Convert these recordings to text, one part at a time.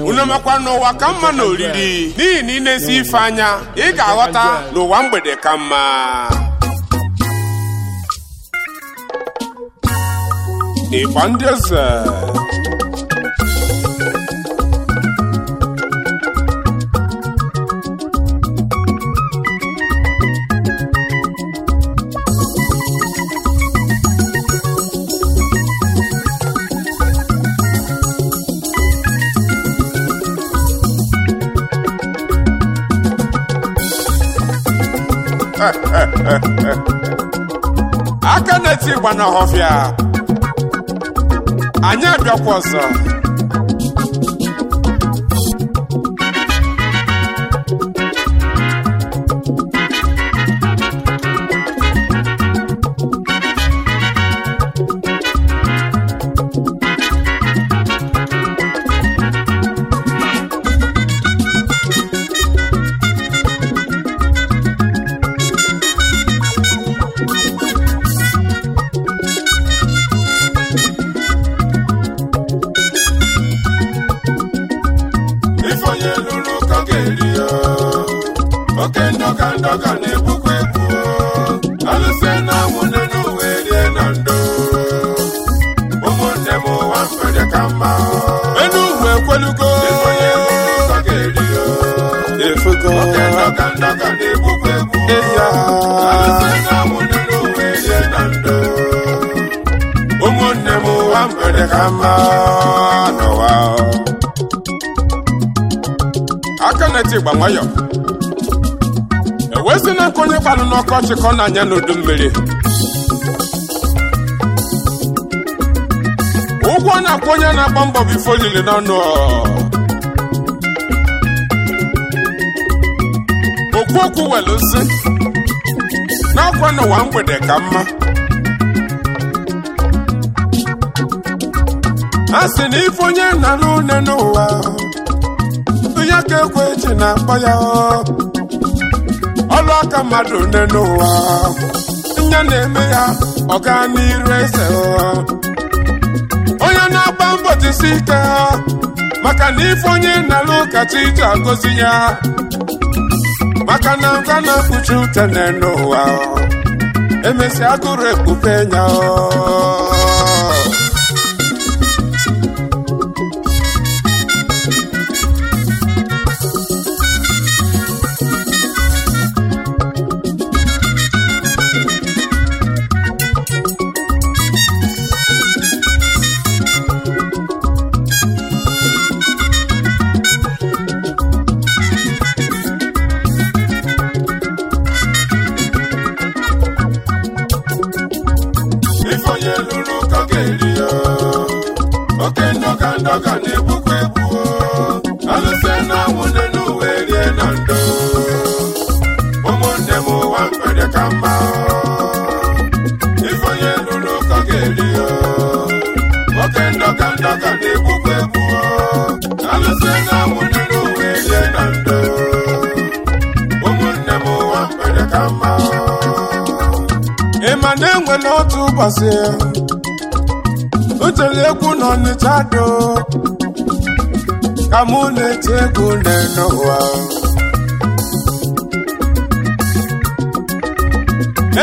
unemakwa n'ụwa ka mma na oriri n'ihi na ị na-esi ife anya ị ga-aghọta n'ụwa mgbede ka mma ịgba ndị eze aka na-eti ịgba n'ọhọfịa anyị abịakwa ọzọ oke ndọga ndọga na-ebukwa ebu alụsị na nwunye n'uwe uwe rie na ndụ ụmụnne m ụwa mgbede ka mma enu ugwu ekwelugo onye ụzọ ga-eri efugo oke ndọga ndọga na-ebukwa ebu alụsị na nwunye n'uwe uwe rie na ndụ ụmụnne m ụwa mgbede ka mma n'ụwa aka na-eti ịgba nwayọọ E si na nke onye gbalụ n'ọkọchị ka ọ na-anya n'udu mmiri ụgwọ na-akwụ onye na-agba mbọ bụ ifo olili n'ọnụ okwu okwu welu si n'akwa n'ụwa mgbede ka mma a sị na ife onye na arụ une n'ụwa onye aka ekwe eji na-akpọ ya baka madu neno wa Nya neme ya oka nirese wa Oya na bambo tisika Maka nifonye na luka chita gozi ya Maka nanga na kuchute neno wa Emesi akure kupenya wa ọka na-egbukwa egbu alụfe na anwụ na n'uwe rie na ndụ ụmụnne m ụwa mkpede ka mma ife onye lụrụ ụkọ ga-eri oke ndọka ndọka na-egbukwa egbu alụfe na anwụ nne n'uwe rie na ndụ ụmụnne m ụwa mkpede ka mma ịma na enwere otu ụbọchị tiri egwu n'ọnịcha do ka mụ na-eti egwu lee n'ụwa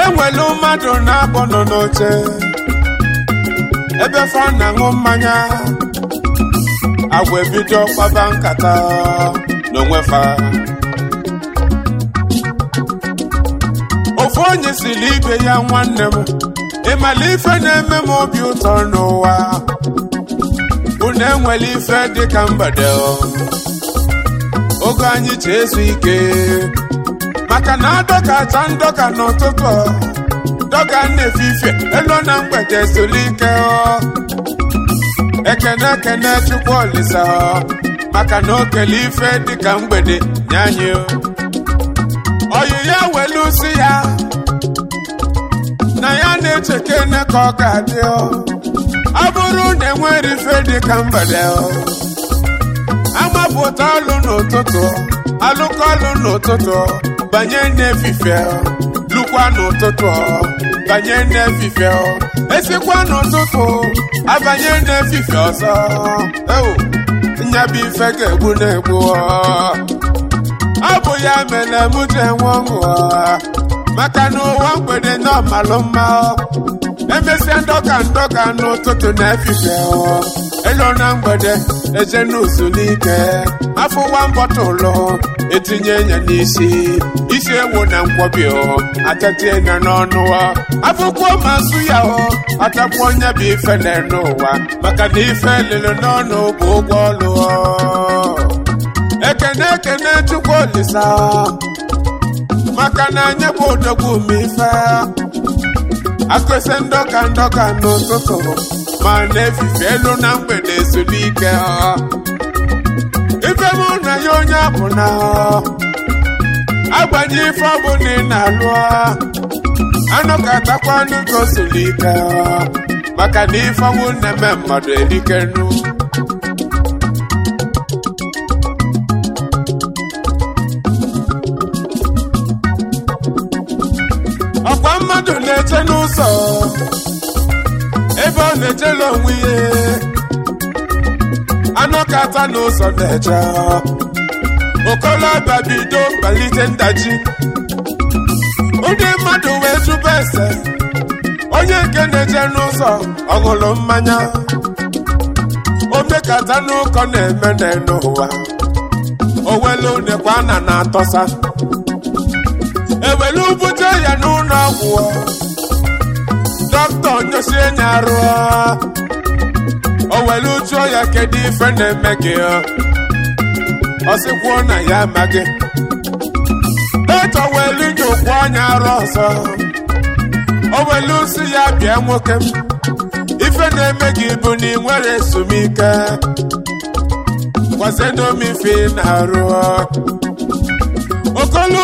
enwelu mmadụ na-abọ nọ n'oche ebe fa na-aṅụ mmanya agwa ebido kpaba nkata n'onwe fa ofu onye siri ibe ya nwanne m ịmala ife na-eme m obi ụtọ n'ụwa unu enwela ife dị ka mgbede oge anyị ji ezu ike maka na adọkata ndọka n'ụtụtụ dọga na-efe ife elu na mgbede soli ike ekene ekene chukwu olisa maka na okele ife dị ka mgbede nye oyi ya welu si ya na-echekene ka ọ ga-adị ọ bụrụ na enwere ife dị ka mgbede amapụta alụ n'ụtụtụ alụkọ alụ n'ụtụtụ banye n'efife lụkwa n'ụtụtụ banye n'efife esikwa n'ụtụtụ abanye n'efife ọzọ ewu nyabụ ife ga-egbu na-egbu ọ bụ ya mere m ji enwe ọṅụ maka na ụwa mgbede n'ọmalụ mma emesịa ndọka ndọka n'ụtụtụ na efife elo na mgbede eje n'ụzụ n'ike afọ ụwa mbọta ụlọ etinye ya n'isi isi ewu na nkwobi atatie ya n'ọnụ afụkwuo ma nsụ ya atapụ onye bụ na n'ụwa maka na ife lele n'ọnụ bụ ụgwọ ọlụ ekene ekene chukwu olisa maka na anyị bụ odogwu mfe akụsị ndọka ndọka n'ụtụtụ ma na-efife elu na mgbede ezumike ife mụ na ya onye abụ na agbanye ife ọ bụ na ị na-alụ anụ ka atakwa anụ ike maka na ife ọnwụ na-eme mmadụ erike nnu ebe ọ na-ejela onwe ihe anụ n'ụzọ na-eje okolobịa bido ndaji ndị mmadụ wee zụba ese onye nke na-eje n'ụzọ ọṅụlụ mmanya omekata n'ụkọ na-eme n'ụwa owelu nekwa na na-atọsa ewelu bute ya n'ụlọ ọgwụ na-egosi enyi arụ o were ujuo ya kedu na-eme gị ọ sịkwuo na ya amaghị e welu ụkwụ anya o welu si ya bịa nwoke m ife na-eme gị bụ na ezumike na arụ okolu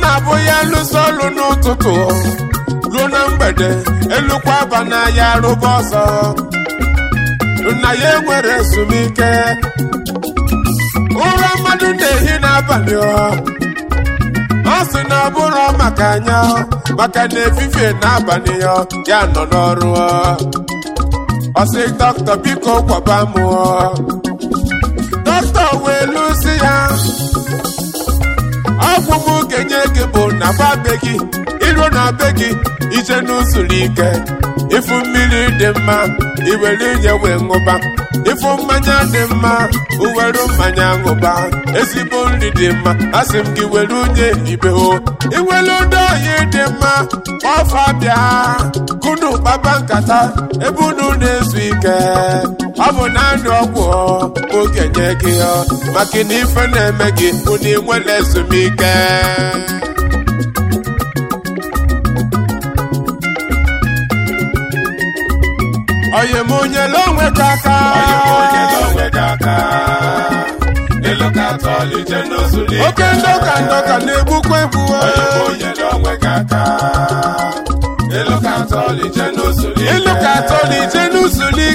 na ruo na mgbede elukwa aba ya rụba ọsọ nna ya enwere ezumike ụra mmadụ na-ehi n'abalị ọ sị na ọ bụrụ maka anya maka na efifie n'abalị ya ya nọ n'ọrụ ọ sị dọkịta biko kwaba mụọ dọkịta wee ya ọfụfụ kenye gị bụ na be gị iru na be gị ije n'usoro ike ịfụ mmiri dị mma iwere inye wee ṅụba ịfụ mmanya dị mma uwere mmanya ṅụba ezigbo nri dị mma asị m gị were unye ibe o iwere ndị oyi dị mma ọfa bịa kunu kpaba nkata ebe unu na-ezu ike ọ bụ na ndụ ọgwụ oge nye gị maka na ife na-eme gị ụna inwere ezumike onye m onyela onwe gị aka oke ndọka ndọka na-egbukwa egbu ịlụ ka atọ na ije n'usuli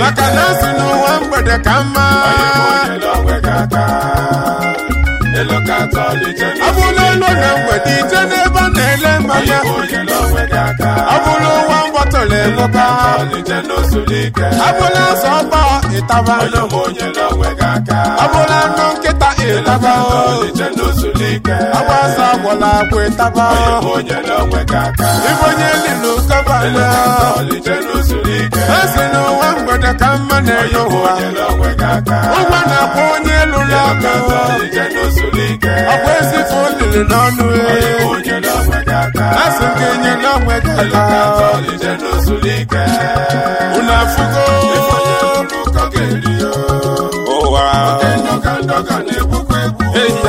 maka na asị n'ụwa mgbede ka mma abụla ụlọ na mgbede ije n'ebe a na-ele mmanya ya. Ọ bụla elụba abụla azọ ọkpa ịtaba ya. nkịta ịtaba agbasa agwọla agwa ịtaba ịbụ onye linu kaba esi na ụwa mgbede ka mma na-enye ụwa ụgwọ na-akwụ onye elu lụrụ aka ọkwa ezifụ olili n'ọnụ e. asị nke nye n'onwe gị aka unu afụgo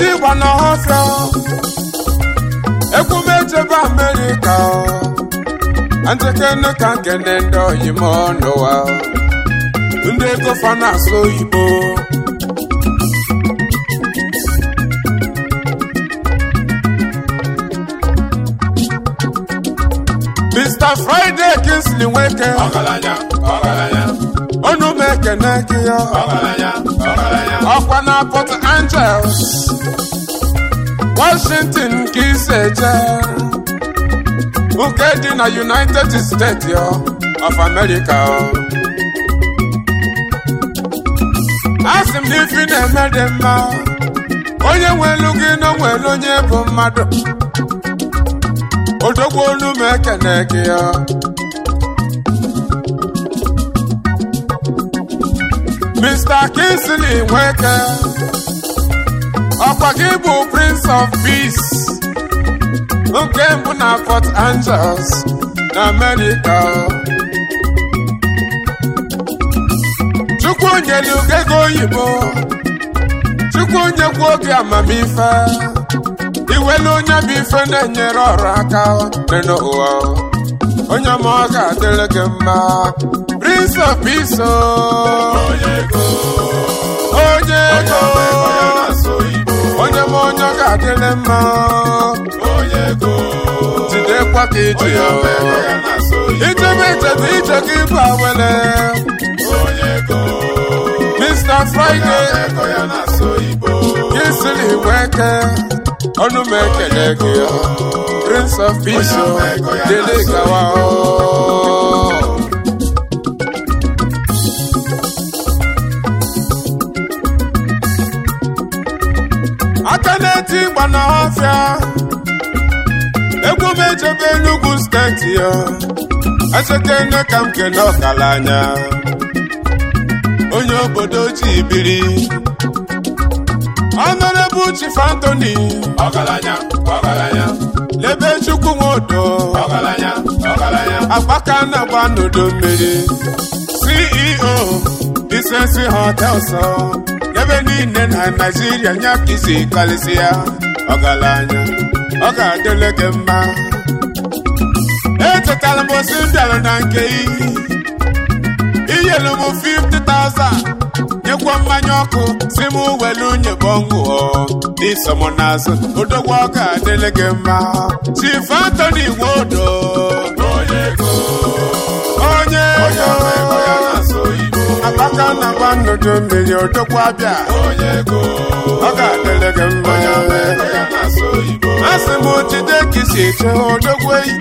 ndị igba na ọsọ ekwumejebe amerịka njekene ka nkene ndị oyim n'ụwa ndị ego fa na-asụ oyibo Mr. Friday Kingsley Nweke ọgaranya ọgaranya ekene gị ọkwa na Port Angeles Washington ka isi eje nke dị na United States of America asị m na ife na-eme dị mma onye nwelu gị na nwere onye bụ mmadụ odogwo olu m ekene gị ya Mr. Kingsley Nweke ọkwa gị bụ Prince of Peace nke mbụ na Port Angeles na America onye nyere ugego oyibo Chukwu nyekwu obi amamife iwelu onye bụ ife na-enyere ọrụ aka dị n'ụwa onye ma ọ ga-adịrị gị mma Prince of Peace. Onye ego. Onye m onye ga-adịrị mma. Jidekwa ka iji ya. Ijebe ijedu ije gị bụ awele. Mr. Friday. Gị siri igwe eke. Ọnụ m ekele gị. Prince of Peace. Dele gawa. aka na-eti ịgba na ọfịa egwu m ejebe Enugu steeti ya echekene ka m Ọkala anya onye obodo ojii biri Fantoni Chief anya, fantoni anya. lebe Chukwu nwodo ọkalanya anya. agbaka na-agba n'udo mmiri CEO Decency Hotels ebe niile na naijiria nya bụ isi karịsịa anya ọ ga-adịle gị mma echetara m osi bịara na nke iyi inyelu m 50,000 nyekwa mmanya ọkụ si m were unye bọnwụọ n'iso m n'azụ odogwu ọ ga-adịle gị mma chief Anthony Nwodo onye ego uju mmiri odokwa bịa ọ ga-adịrị gị mma asị m jide ka isi eche odogwu eyi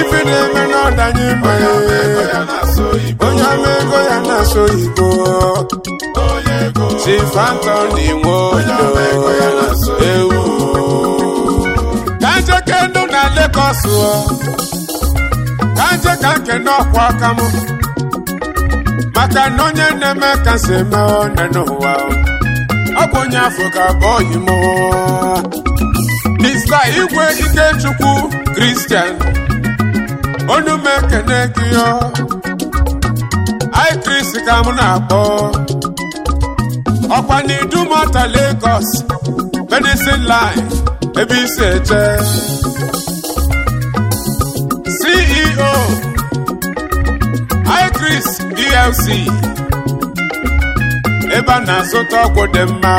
ife na-eme n'ọdanye mmanya onye ama ego ya na-asụ oyibo si fanta dị nwe ewu ka njeke ndụ na lekọsụ oh. ka ka nke n'ọkwa aka m maka na onye na-eme ka si eme onye n'ụwa ọ bụ onye afọ ka bụ onye m mista igwe ikechukwu kristian onye m ekene gị i ka m na-akpọ ọkwa na mata Lagos medicine line ebe isi eche CEO plc ebe na-azụta ọgwụ dị mma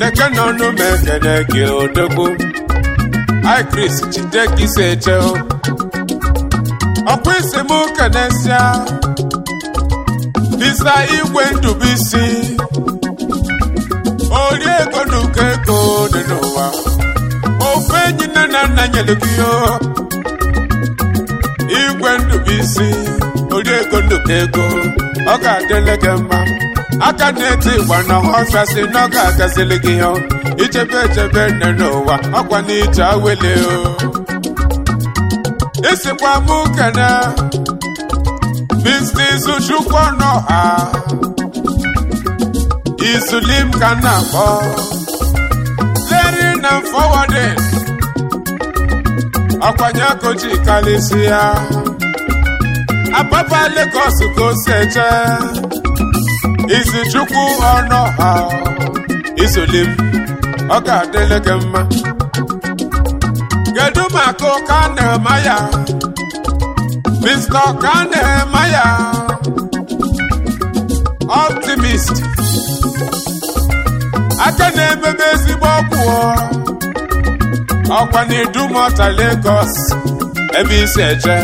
deke n'ọnụ ma gị odogwu ikris jide gị si eche ọkwa isi m ego na ego ofe enyi nne na nna nyere oriego nduka ego ọ ga-adịle gị mma aka na-eti ịgba na ọfesi na ọ ga-agazili gị ya ichebe echebe nne n'ụwa ọkwa na ije awele o isikwa m kene biznis chukwu ọnụ ha izulim ka m na-akpọ leri na fọwọdin ọkwanye akochi kalisi ya Ababa Lagos ka o si eje izichukwu ọnụ ha izuli m ọ ga-adịle gị mma kedu maka ụka na-eme ya Mr. ka na-eme ya optimist aka na-ememe ezigbo ọgwụ ọkwa na dumota Lagos ebe isi eje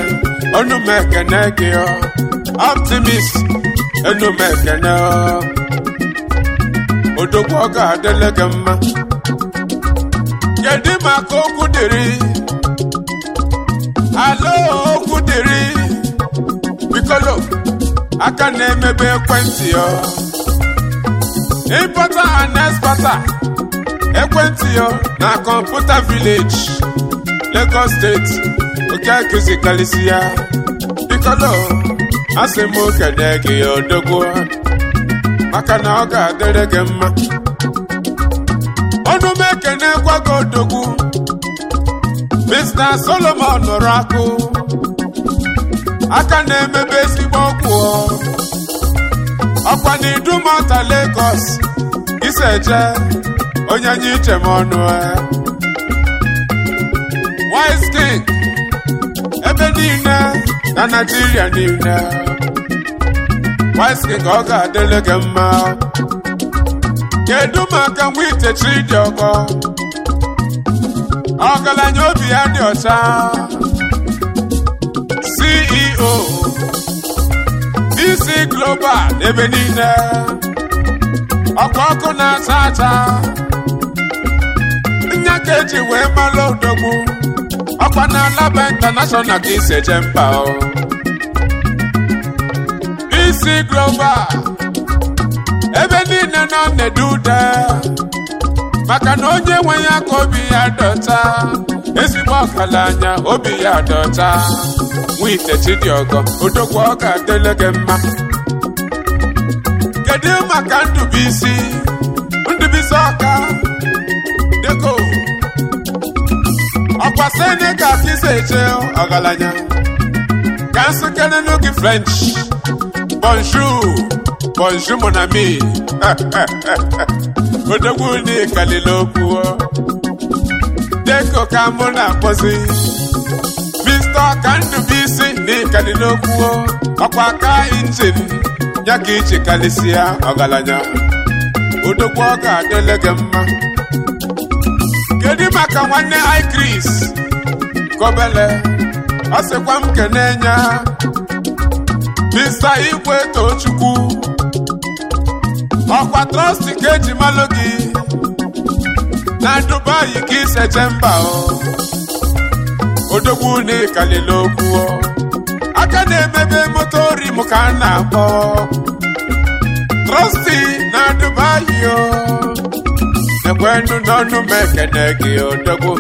ọnụ m ekene ọ. optimist ọnụ m ekene odogwu ọ ga-adịle gị mma kedu maka okwu alo okwu dịrị bikolo aka na emegbe ekwentị yo ịbata and expata ekwentị yo na kọmputa village Lagos steeti nke akụzikarịsị ya ikolo asị m ya odogwu maka na ọ ga mma ọnụ m ekene gwago odogwu Mr. Solomon nụrụ akụ aka na-emebe ezigbo ọgwụ ọkwa na idumota Lagos iseje onye nye iche m ọnụ e. wise niile na Nigeria niile wise ka ọ ga-adịle gị mma kedu maka nwite itechi dị ọkọ ọgaranya obi ya dị ọcha CEO DC Global ebe niile ọkwa ọkụ na-acha acha Nnyakeji eji wee mara odogwu ọkwa na alaba international ka isi eje mba isi global. ebe niile nọ na-ede ude maka na onye nwe ya ka obi ya dọta ezigbo ọkala anya obi ya dọta nwite ọgọ, odogwu ọ dele gị mma kedu maka Ndubuisi Ndubuisi Ọka kwa senegal ka isi eche ọgaranya ka nsụkere n'oge french bonjour bonjour mon ami odogwu n'ikalile okwu deko ka mụ na-akpọzi mr kandubisi n'ikalile okwu ọkwa aka injin ya ka iji karịsịa ọgaranya odogwu ọ ga-adịle gị mma kedu maka nwanne Chris Kobele ọ sịkwa m kene nya Mr. Igwe Tochukwu ọkwa trọsti ka eji malụ gị na Dubai ka iseche mba odogwu na ịkalile okwu aka na-emebe moto rim ka a na-akpọ trọsti na Dubai o nu n'ọnụ m ekene gị odogwu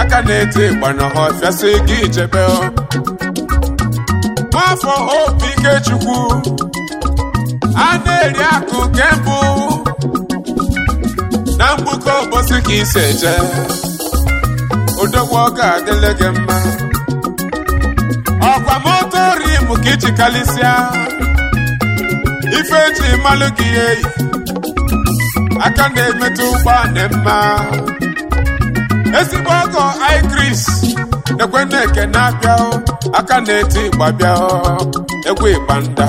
aka na-eti ịgba n'ọha ọfịasị gị ichebe nwafọ obi Ikechukwu a na-eri akụ kembụ na mgbuke ụbọchị ka isi eje odogwu ọka adịle gị mma ọkwa moto rim ka iji kalịsịa ife eji malụ gị eyi aka na-emetụ ụgbọ dị mma ezigbo ọgọ igris ekweneke na abịa na-abịa aka na-eti ịgba bịa egwu ịgba nda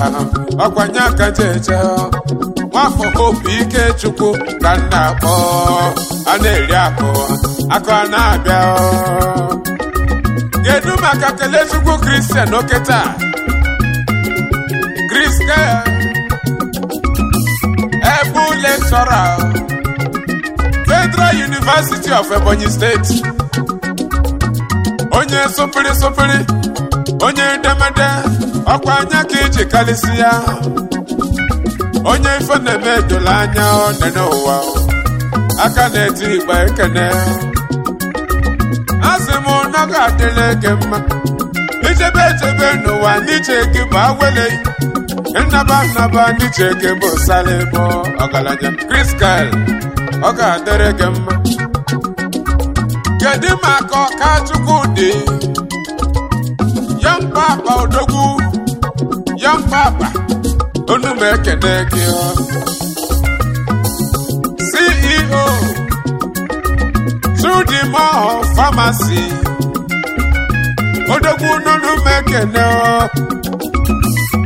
ọkwanye aka jeje nwafọ obi ike chukwu ka nna akpọ a na-eri akụ akụ a na-abịa kedu maka kele chukwu kristian oke taa kristian lecturer Federal University of Ebonyi State onye sopiri sopiri, onye edemede ọkwa anya ka iji karịsị ya onye ife na-eme edola anya onene ụwa aka na-eti igba ekene asị m na ọ ga-adịla eke mma ijebe echebe n'ụwa n'iche gị bụ nnaba nnaba ndị ji eke bụ sala ebo ọgaranya Chris Kyle ọ ga-adịrị gị mma kedu maka ọka chukwu dị ya mkpa akpa odogwu ya mkpa akpa onu m ekene gị CEO Chudimore Pharmacy odogwu nonu m ekene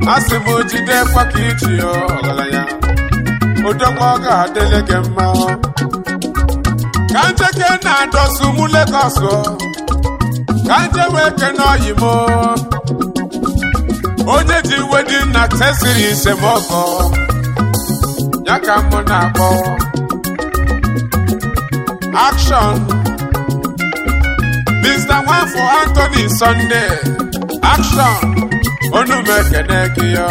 Asị bụ m jidekwa ka iji ọgaranya odogwu ọ ga-adịle gị mma ka njeke na-adọsụ mụ Legọs ka nje wee kene ọyị onye ji iwe dị nna tesiri isemọkọ ya ka mụ na-akpọ akshọn Mr. Nwafọ Anthony Sunday akshọn onu m gị ya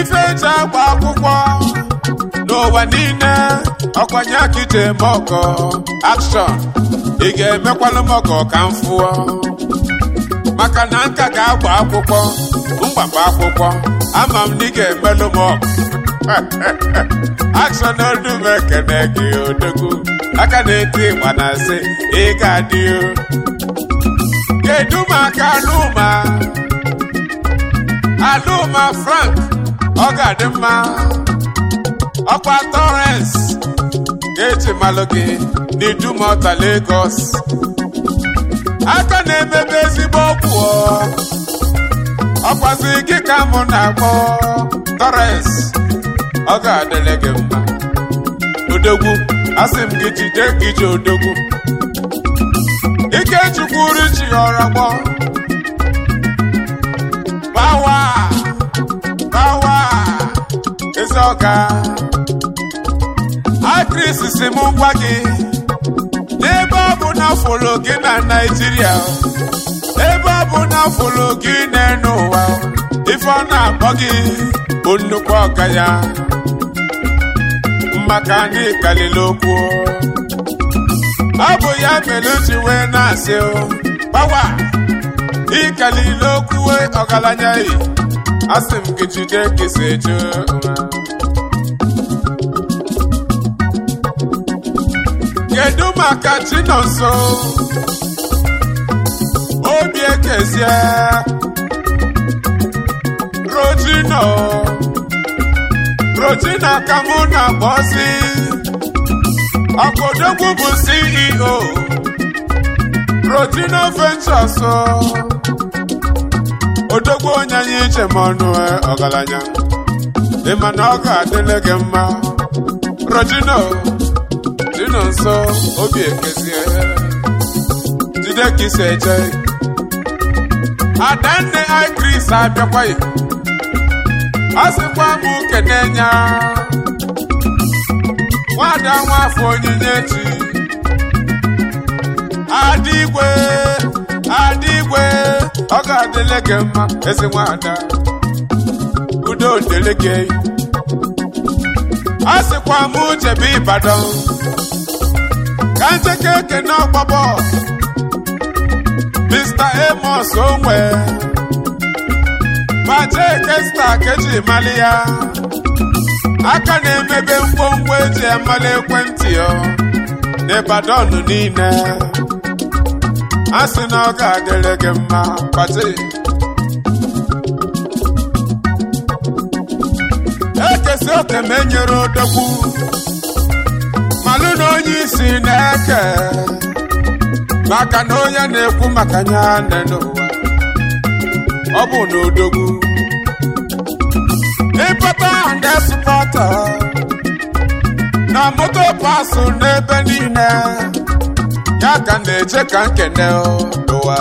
ife eji agba akwụkwọ n'ụwa niile ọkwanye akite mọgọ akshọn ị ga-emekwalụ mọgọ ka m fụọ maka na nka ga-agba akwụkwọ mgbakwa akwụkwọ ama m na ị ga-emelụ m akshọn onu m gị odogwu aka na-eti ịgba na asị ga kedu maka anụma Aduma Frank ọ ga-adị mma ọkwa Torres ga-eji malụ gị n'Idumota Lagos aka na-emebe ezigbo ọgwụ ọkwazi gị ka mụ na-akpọ Torres ọ ga-adịle mma odogwu asị m gị jide gị odogwu ike chi osisi ọka aktris si m gwa n'ebe ọ bụ na folo gị na naijiria ebe ọ bụ na folo gị n'elu ụwa ife ọ na-akpọ gị bụ nnukwu ọka ya maka na ịkalili okwu ọ bụ ya mere uchi wee na-asị gbawa ịkalili okwu ọgaranya yi asị m gị jide kesa eju kedu maka chi nọ nso obi ekezie rojino rojina ka e mụ e na bọsi ọkụdogwu bụ ceo rojino ventures odogwu onye anyị iche ma ọnụ ọgaranya dị mana ọ ga-adịle gị mma rojino nọ nsọ obi ekezie jide ka isi eje adanne ikris abịakwaghị ọ sịkwa m kene nya nwada nwafọ onyinye chi adigwe adigwe ọ ga-adịle gị mma ezi nwada udo dịle gị ọ sịkwa m jebe Ịbàdàn ka ncheke ekene ọgba bọs Mr. Amos onwe majeke sta ka eji mali ya aka na-emebe ngwongwo eji amali ekwentị ya n'Ịbadọn niile a sị na ọ ga-adịrị gị mma kpati ekesi oke ma enyere odogwu malụ na onye isi na-eke maka na onye na-ekwu maka ya n'ụwa ọ bụ n'odogwu ịpata ndị supọta na moto pasụ n'ebe niile ya ka na-eche ka nkene n'ụwa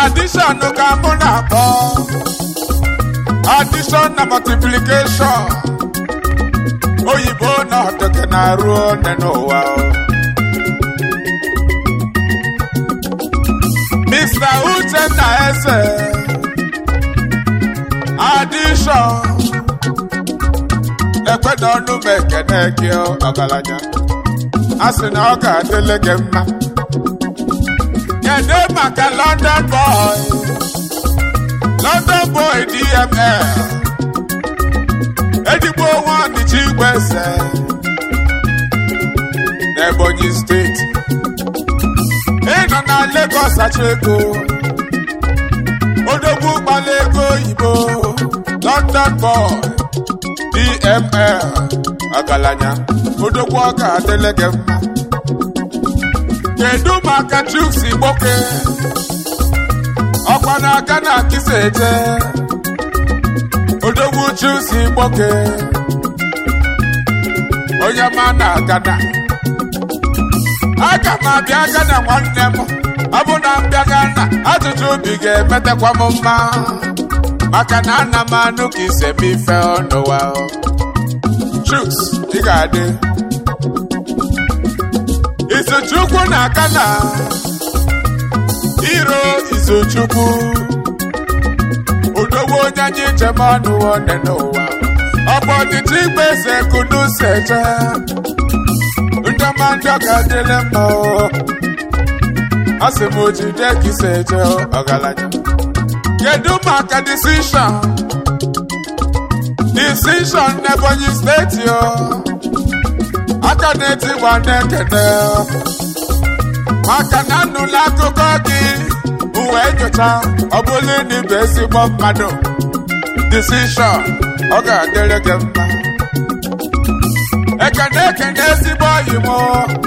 adishọn ka mụ na-akpọ addition na multiplication oyibo na ọtọkẹ na-arụ ne n'ụwa Mr. na Eze addition ekwena ọnụ m na gị ọgaranya a sị na ọ ga-adịle gị mma kedu maka London Boys London boy DML edigbo onwe ọnịcha igwe ese n'Ebonyi steeti ịnọ na Lagos achọ ego odogwu gbala ego oyibo London boy DML ọgaranya odogwu ọ ga-adịle gị mma kedu maka Chuks Igboke ọ na-aga na akịsa eje odogwu chusi gboke onye ma na agana aga m abịa agana nwanne m ọ bụ na mbịa gana ajụjụ obi ga-emetakwa m mma maka na ana m anụ ka ise m ife ọnụwa chuks ị ga-adị isi chukwu na akana iro so chukwu odogwu onye anyị chema n'ụwa n'ụwa ọ bụ ọdịchị igbe kunu ndị ọma ndị ọka dịle mma asị m oji ka ise eje ọgaranya kedu maka disishọn disishọn n'ebonyi steeti aka na-eti ọcha ọ bụla ịdịbụ ezigbo mmadụ disishọn ọ ga-adịrị gị mma ekene ekene ezigbo oyi onye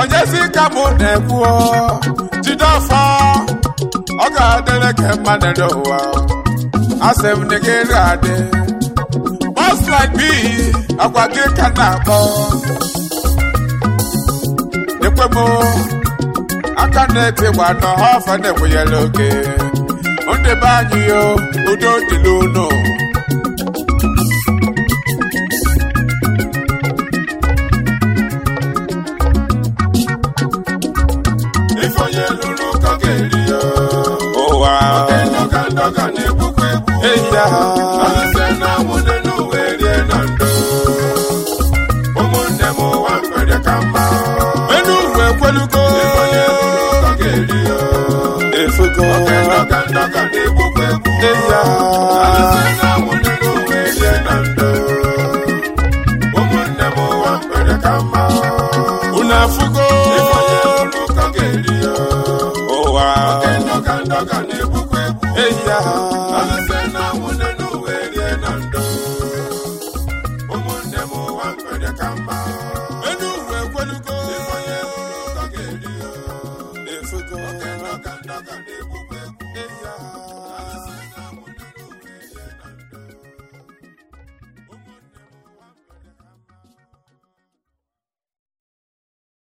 onyezi ka mụ na-ekwu jide ọfọ ọ ga-adịrị gị mma n'elu ụwa asị m na gị ga-adị mọslaik bi agwa gị ka na-akpọ ekwemo aka na-epe gbana ha ọfa na-enwenyela oge ndebe anyị ya udo dịla unu ifonye lụrụ ụkọ ga-eri ya ụwa around.